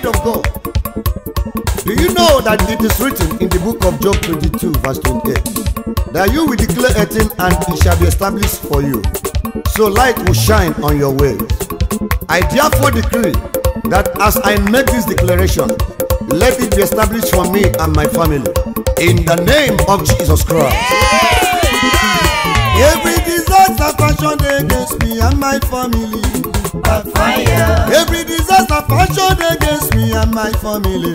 Spirit of God. Do you know that it is written in the book of Job 22, verse 28, that you will declare a thing and it shall be established for you, so light will shine on your way. I therefore decree that as I make this declaration, let it be established for me and my family in the name of Jesus Christ. Yeah. Every disaster fashioned against me and my family backfire. Every disaster fashioned against me and my family.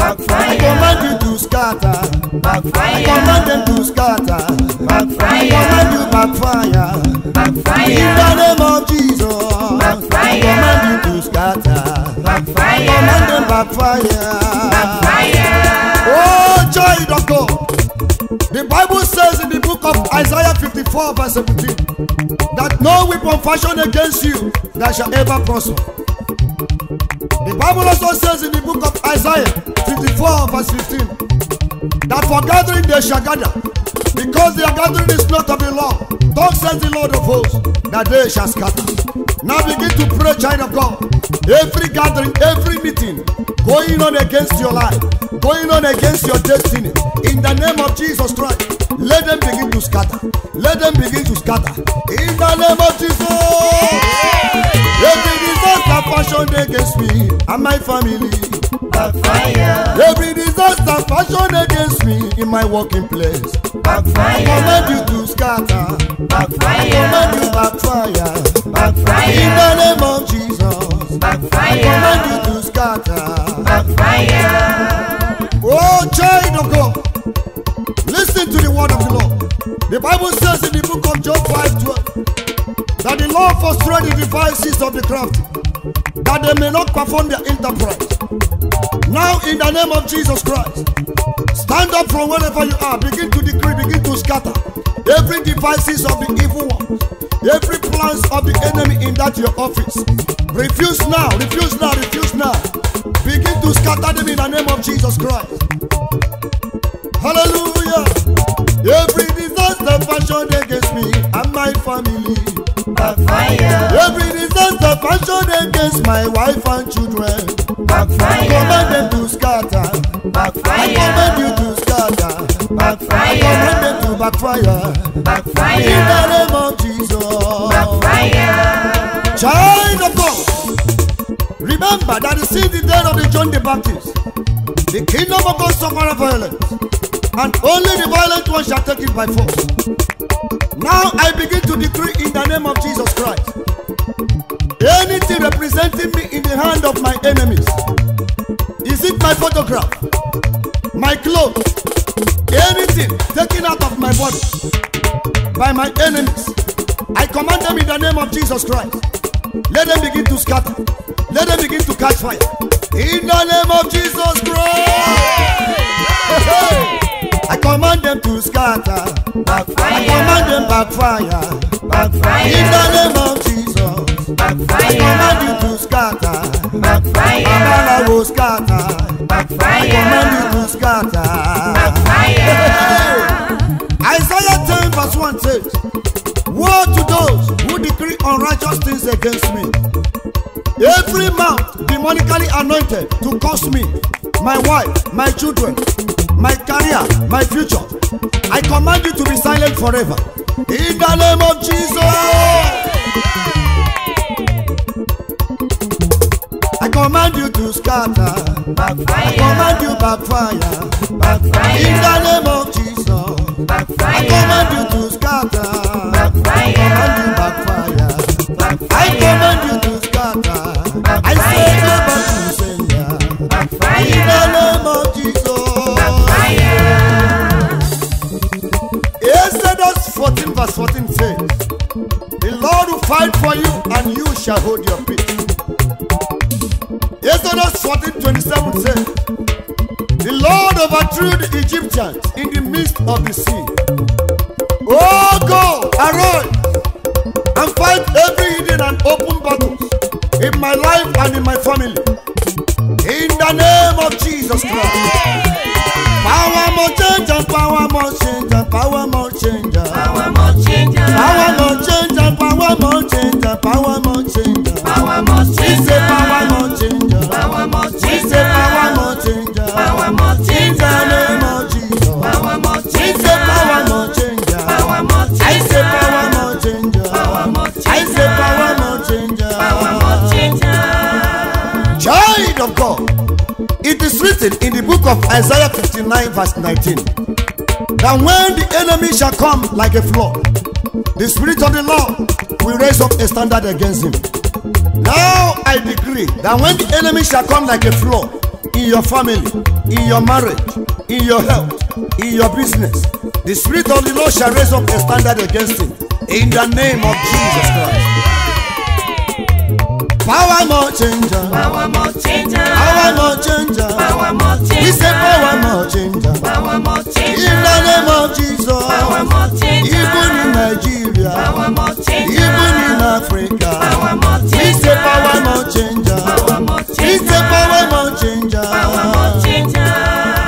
Backfire. I command you to scatter. Backfire. I command them to scatter. Backfire. I command you backfire. Backfire. In the name of Jesus. Backfire. I command you to scatter. Backfire. I command them backfire. Backfire. Oh, joy, doctor. The Bible book of Isaiah 54 verse 17 that no weapon fashioned against you that shall ever prosper. The Bible also says in the book of Isaiah 54 verse 15 that for gathering they shall gather because their gathering is not of the law. Thus says the Lord of hosts that they shall scatter. Now begin to pray, child of God. Every gathering, every meeting going on against your life, going on against your destiny. In the name of Jesus Christ scatter. Let them begin to scatter. In the name of Jesus. Every disaster fashioned against me and my family. Backfire. Every disaster fashioned against me in my working place. Backfire. Command you to scatter. Backfire. Command you backfire. Backfire. In the name of Jesus. Backfire. Command you to scatter. Backfire. Oh, child of God. Listen to the word of the Lord. The Bible says in the book of Job 5:12 that the Lord frustrated the devices of the craft, that they may not perform their enterprise. Now, in the name of Jesus Christ, stand up from wherever you are, begin to decree, begin to scatter every devices of the evil one, every plans of the enemy in that your office. Refuse now, refuse now, refuse now. Begin to scatter them in the name of Jesus Christ. Hallelujah. Every fashioned against me and my family. Backfire. Every disaster fashioned against my wife and children. Backfire. I command them to scatter. Backfire. I command you to scatter. Backfire. I command them to backfire. Backfire. In the name of Jesus. Backfire. Child of God. Remember that since the day of the John the Baptist. The kingdom of God suffered violence and only the violent one shall take it by force. Now I begin to decree in the name of Jesus Christ. Anything representing me in the hand of my enemies. Is it my photograph? My clothes? Anything taken out of my body by my enemies. I command them in the name of Jesus Christ. Let them begin to scatter. Let them begin to catch fire. In the name of Jesus Christ. Yeah. I command them to scatter. Backfire. I command them backfire. Backfire. In the name of Jesus. Backfire. I command you to scatter. Backfire. Amala will scatter. Backfire. I command you to scatter. Backfire. Isaiah 10 verse 1 says, Woe to those who decree unrighteous things against me. Every mouth demonically anointed to curse me, my wife, my children, my career, my future. I command you to be silent forever. In the name of Jesus. I command you to scatter. I command you backfire. backfire. In the name shall hold your peace. Exodus 14 27 says, The Lord overthrew the Egyptians in the midst of the sea. Oh God, arise and fight every hidden and open battle in my life and in my family. In the name of Jesus Christ. Yeah. Power more change power more change power more change. Power more change. Power more power must change. Uh, power must change. Uh. Uh. Power must change. We say power must change. Power must change. We power must change. Power must change. The name of Jesus. Power must change. We power must change. Power must change. I power must change. Power must change. I power must change. Power must change. Child of God, it is written in the book of Isaiah 59 verse 19 that when the enemy shall come like a flood, the spirit of the Lord we raise up a standard against him. Now I decree that when the enemy shall come like a flood in your family, in your marriage, in your health, in your business, the Spirit of the Lord shall raise up a standard against him. In the name of Jesus Christ. Power more changer. Power more changer. Power more changer. Power more changer. We say power more changer. Power more changer. In the name of Jesus. Power more changer. Even in Nigeria. Power more changer. Even in Africa. Power more changer. We say power more changer. Power more changer. We say power more changer. Power more changer.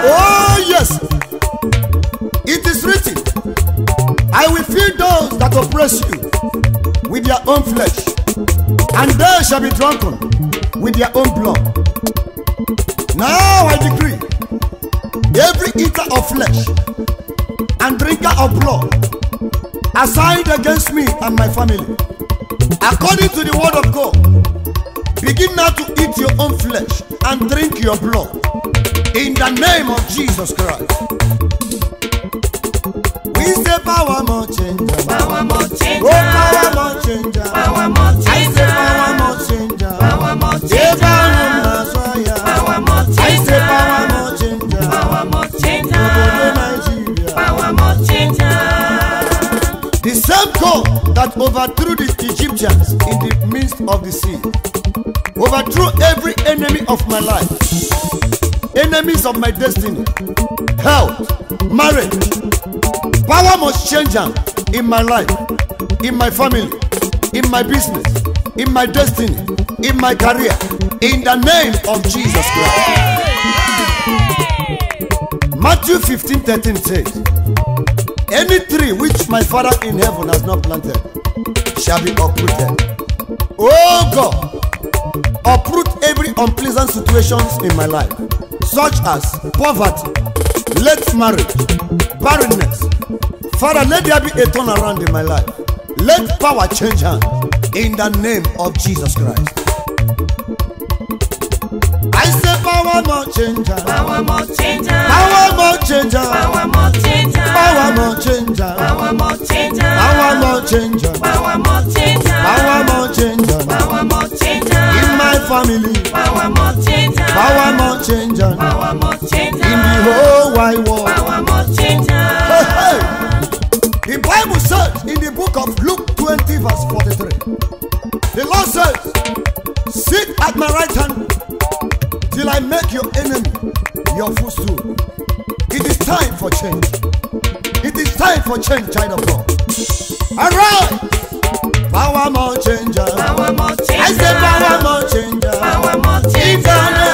Oh yes. It is written. I will feed those that oppress you with their own flesh and they shall be drunken with their own blood. Now I decree every eater of flesh and drinker of blood assigned against me and my family, according to the word of God, begin now to eat your own flesh and drink your blood in the name of Jesus Christ. We say power more change. Power more change. Oh, power more change. Power more change. Jericho that overthrew the Egyptians in the midst of the sea, overthrew every enemy of my life, enemies of my destiny, health, marriage. Power must change in my life, in my family, in my business, in my destiny, in my career, in the name of Jesus Christ. Matthew 15 13 says, Any tree which my Father in heaven has not planted shall be uprooted. Oh God, uproot every unpleasant situations in my life, such as poverty, late marriage, barrenness. Father, let there be a turn around in my life. Let power change hand in the name of Jesus Christ. I say Power more change. Power more change. Power more change. Power more change. Power more change. Power more change. Power more change. Power more change. Power more changer. Power more changer. In my family. Power more change. Power more change. Power more changer. In the whole wide world. Power more change. The Bible says in the book of Luke 20 verse 43. The Lord says, Sit at my right hand till I make your enemy your footstool. It is time for change. It is time for change, child of God. Arise! Power more changer. Power more changer. I say power more changer. Power more changer.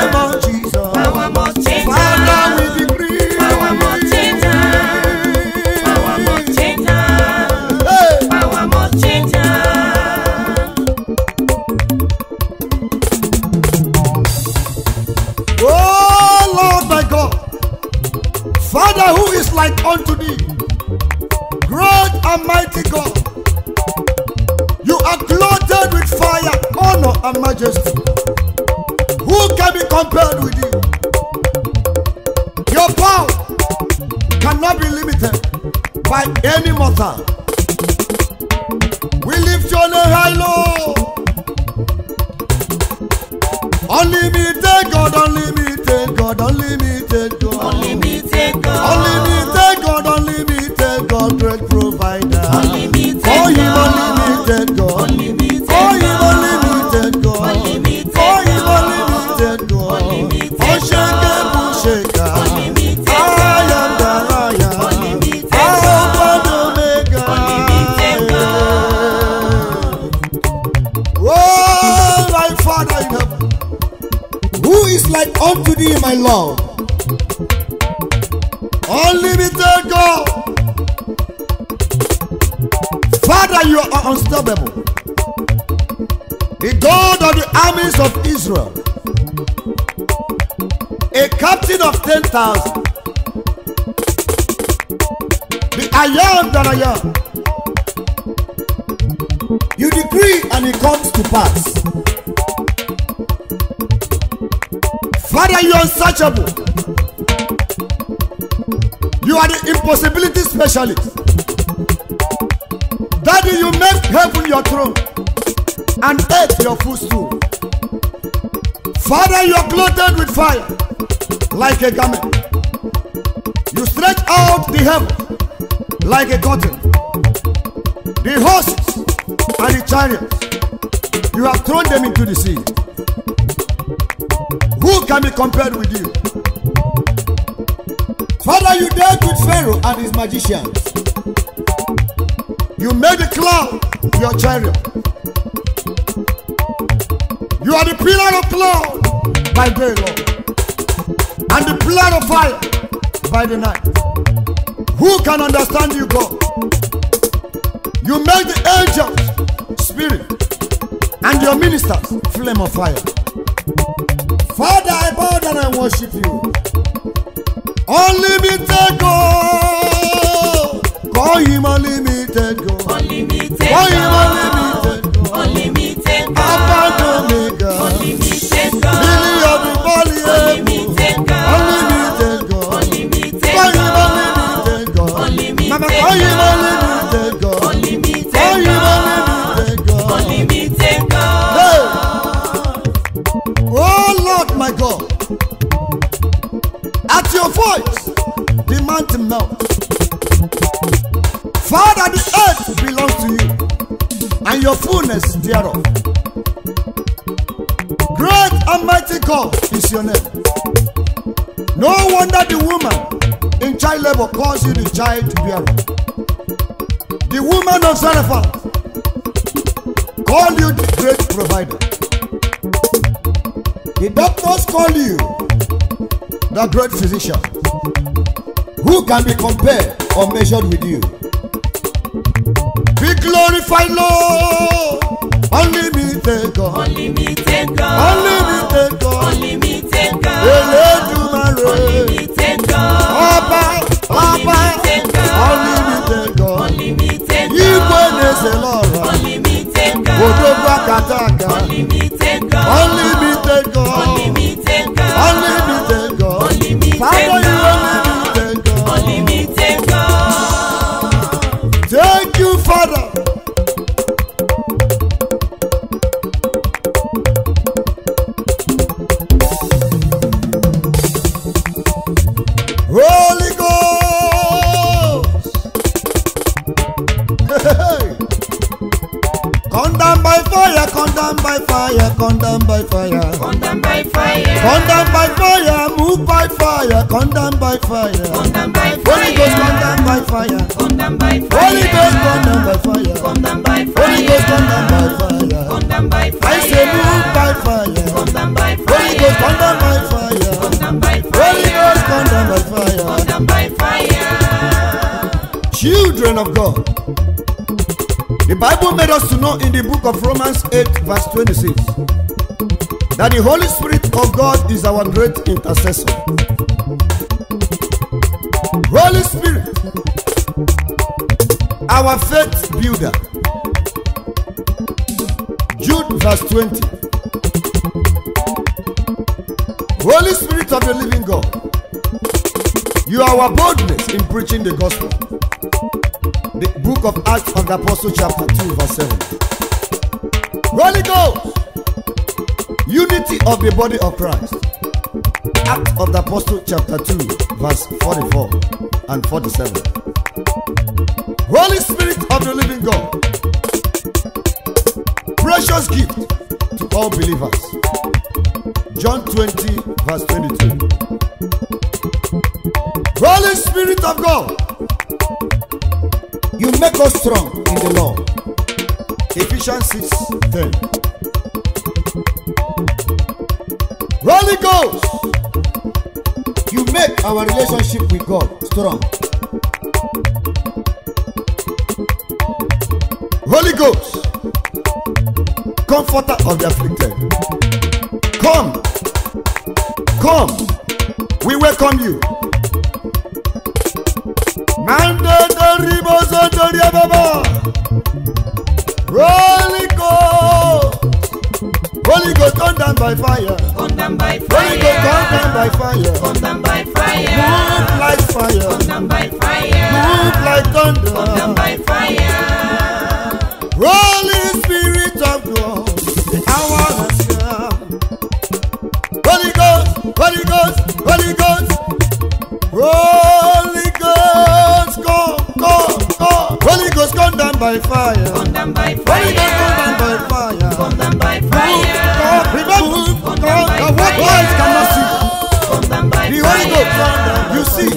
are clothed with fire, honor, and majesty. Who can be compared with you? Your power cannot be limited by any mortal. We lift your name high, Lord. Unlimited God, unlimited God, unlimited God. Unlimited God. Unlimited like unto thee, my love. Unlimited God. Father, you are unstoppable. The God of the armies of Israel. A captain of 10,000. The I am that I am. You decree and it comes to pass. Father, you are unsearchable. You are the impossibility specialist. Daddy, you make heaven your throne and earth your footstool. Father, you are clothed with fire like a garment. You stretch out the heaven like a curtain. The horses and the chariots, you have thrown them into the sea. Who can be compared with you? Father, you dealt with Pharaoh and his magicians. You made the cloud your chariot. You are the pillar of cloud by day, Lord, and the pillar of fire by the night. Who can understand you, God? You make the angels spirit and your ministers flame of fire. Father, I bow down and worship you. Unlimited God. Call him unlimited God. Unlimited Call him unlimited God. Unlimited God. your fullness thereof. Great and mighty God is your name. No wonder the woman in child labor caused you the child to bear. The woman of Zarephath called you the great provider. The doctors call you the great physician. Who can be compared or measured with you? Be glorified, Lord. Unlimited God. Unlimited God. Unlimited God. Unlimited God. Elédùmarè. Unlimited God. Ọba Ọba. Unlimited God. Unlimited God. Unlimited God. Igwe na-ese n'ọrụ. Unlimited God. Odo akata Condemned by fire, condemned by fire. condemned by fire. condemned by fire, move by fire. condemned by fire. Come by fire. Holy Ghost, condemned by fire. Come by fire. Holy Ghost, condemned by fire. Come by fire. Holy Ghost, condemned by fire. Come I say move by fire. Holy Ghost, come by fire. Holy Ghost, come by fire. Children of God. Bible made us to know in the book of Romans 8, verse 26, that the Holy Spirit of God is our great intercessor. Holy Spirit, our faith builder. Jude, verse 20. Holy Spirit of the living God, you are our boldness in preaching the gospel the book of Acts of the Apostle, chapter 2, verse 7. Holy Ghost, unity of the body of Christ. Acts of the Apostle, chapter 2, verse 44 and 47. Holy Spirit of the living God, precious gift to all believers. John 20, verse 22. Holy Spirit of God You make us strong in the Lord. Ephesians 6 10. Holy Ghost, you make our relationship with God strong. Holy Ghost, comforter of the afflicted, come, come, we welcome you. Mandate riboso torí ẹ bàbá rolling go holy go come down by fire come down by fire holy go come down by fire come down by fire move like fire come down by fire move like thunder come down by fire rolling spirit of God the hour has come holy ghost holy ghost holy ghost. Roll by fire. Burn them by fire. Burn them by fire. Burn them by fire. Remember, the what eyes cannot see. The Holy Ghost, you see.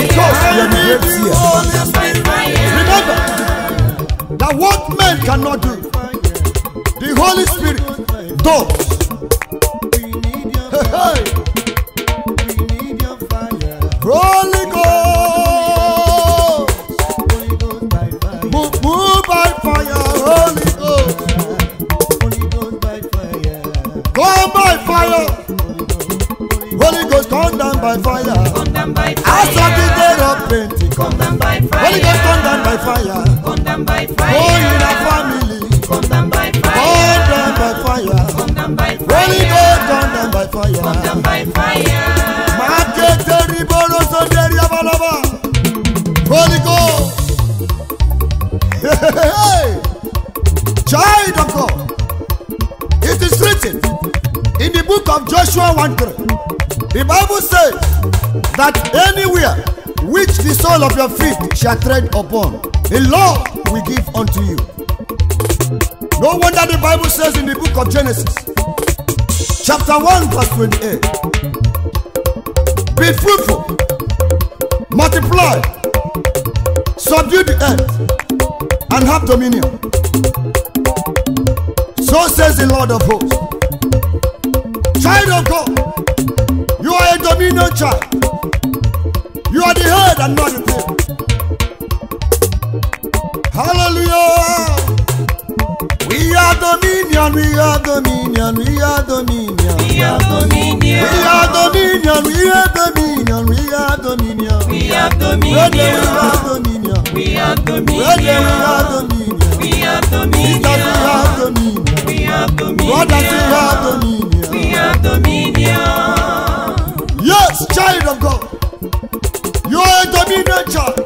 Because you are the great seer. Remember, that what men cannot do, the Holy Spirit does. Hey, hey. Holy Ghost. down by fire. Come down I saw the day of plenty. Come by fire. Holy oh, Ghost, oh, come down by fire. Come Oh, in a family. Come down by fire. Come by fire. Holy Ghost, come down by fire. Come by fire. Market the riboro so deri abalaba. Holy Ghost. Child of God. It is written in the book of Joshua 1 3. The Bible says that anywhere which the sole of your feet shall tread upon, the Lord will give unto you. No wonder the Bible says in the book of Genesis, chapter 1, verse 28, Be fruitful, multiply, subdue the earth, and have dominion. So says the Lord of hosts. Child of God, to me no You are the head and not the tail. Hallelujah. We are dominion, we are dominion, we are dominion. We are dominion. We are dominion, we are dominion, we are dominion. We are dominion. We are dominion. We are dominion. We are dominion. We are dominion. We are dominion. We are dominion. We are dominion as child of God. You are a dominion child.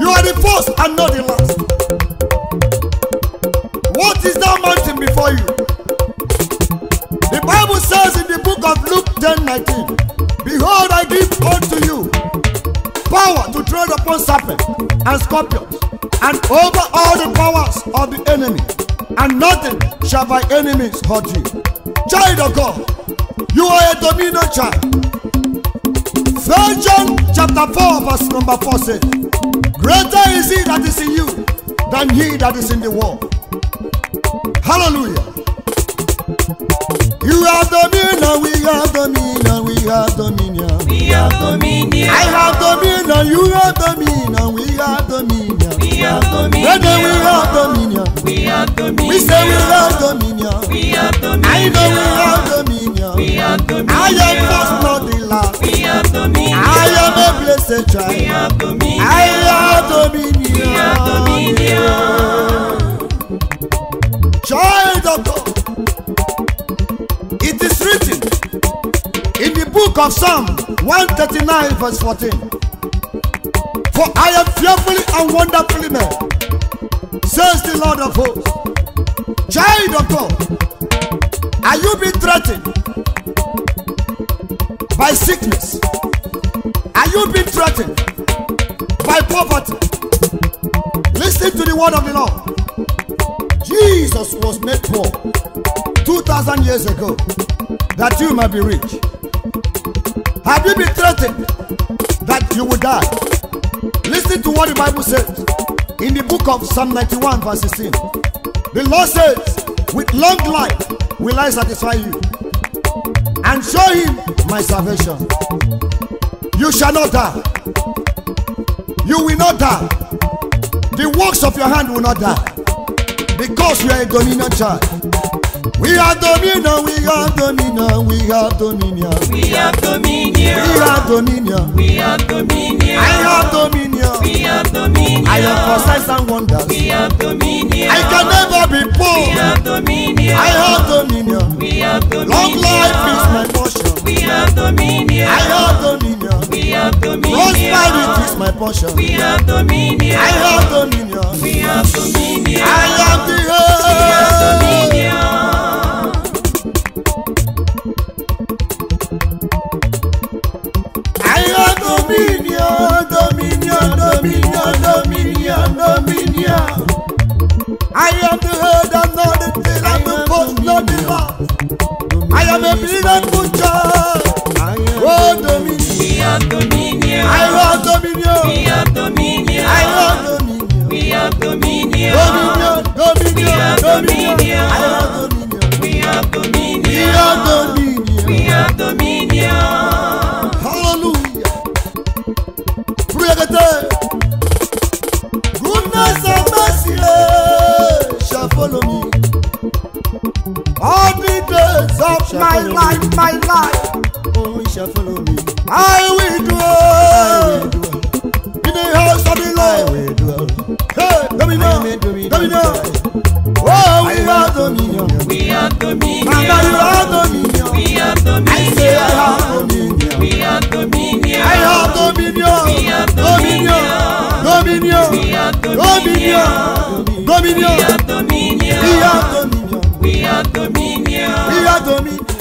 You are the first and not the last. What is that mountain before you? The Bible says in the book of Luke 10 19, Behold, I give unto you power to tread upon serpents and scorpions and over all the powers of the enemy, and nothing shall by enemies hurt you. Child of God. You are a domino child. First John chapter 4 verse number 4 says, Greater is he that is in you than he that is in the world. Hallelujah. You have dominion, we have dominion, we have dominion. We have dominion. I have dominion, you have dominion, we have dominion. We have dominion. Brother, we have dominion. We have dominion. We say we have dominion. We have dominion. I know we I am first not the last. We have dominion. I am a blessed child. We have dominion. I have dominion. We have dominion. Child of God. It is written in the book of Psalm 139 verse 14. For I am fearfully and wonderfully made, says the Lord of hosts. Child of God, are you being threatened? by sickness? Are you being threatened by poverty? Listen to the word of the Lord. Jesus was made poor 2,000 years ago that you might be rich. Have you been threatened that you will die? Listen to what the Bible says in the book of Psalm 91, verse 16. The Lord says, With long life will I satisfy you and show him my salvation. You shall not die. You will not die. The works of your hand will not die. Because you are a dominion child. We are dominion, we are dominion, we are dominion. We have dominion. We have dominion. We have dominion. I have dominion. We have dominion. I have for signs and wonders. We have dominion. I can never be poor. We have dominion. I have dominion. We have dominion. Long life is my portion. We have dominion. I have dominion. We have dominion. Prosperity is my portion. We have dominion. I have dominion. We have dominion. I am the head. We have dominion. dominion, dominion, dominion, dominion, dominion. I am the head and not the tail, I'm the first, not the last. I am a miracle child. Oh, dominion, dominion. I want dominion. We have dominion. I want dominion. We have dominion. Dominion, dominion, dominion. I want dominion. We have dominion. We have dominion. follow me. All the days of my life, my life, oh, you shall follow me. I will dwell in the house of the Lord. Oh, I will dwell. Hey, dominion, dominion. Oh, we are dominion. We are dominion. Mama, you are dominion. We are dominion. I say I have dominion. We are dominion. I have dominion. We are dominion. Dominion. Dominion. Dominion. Dominion dominion. We are dominion. We are dominion. We are dominion.